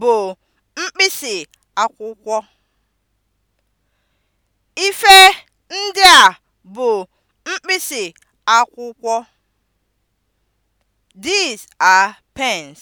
bụ mkpịsị akwụkwọ. Ife ndị a bụ mkpịsị akwụkwọ. These are pens.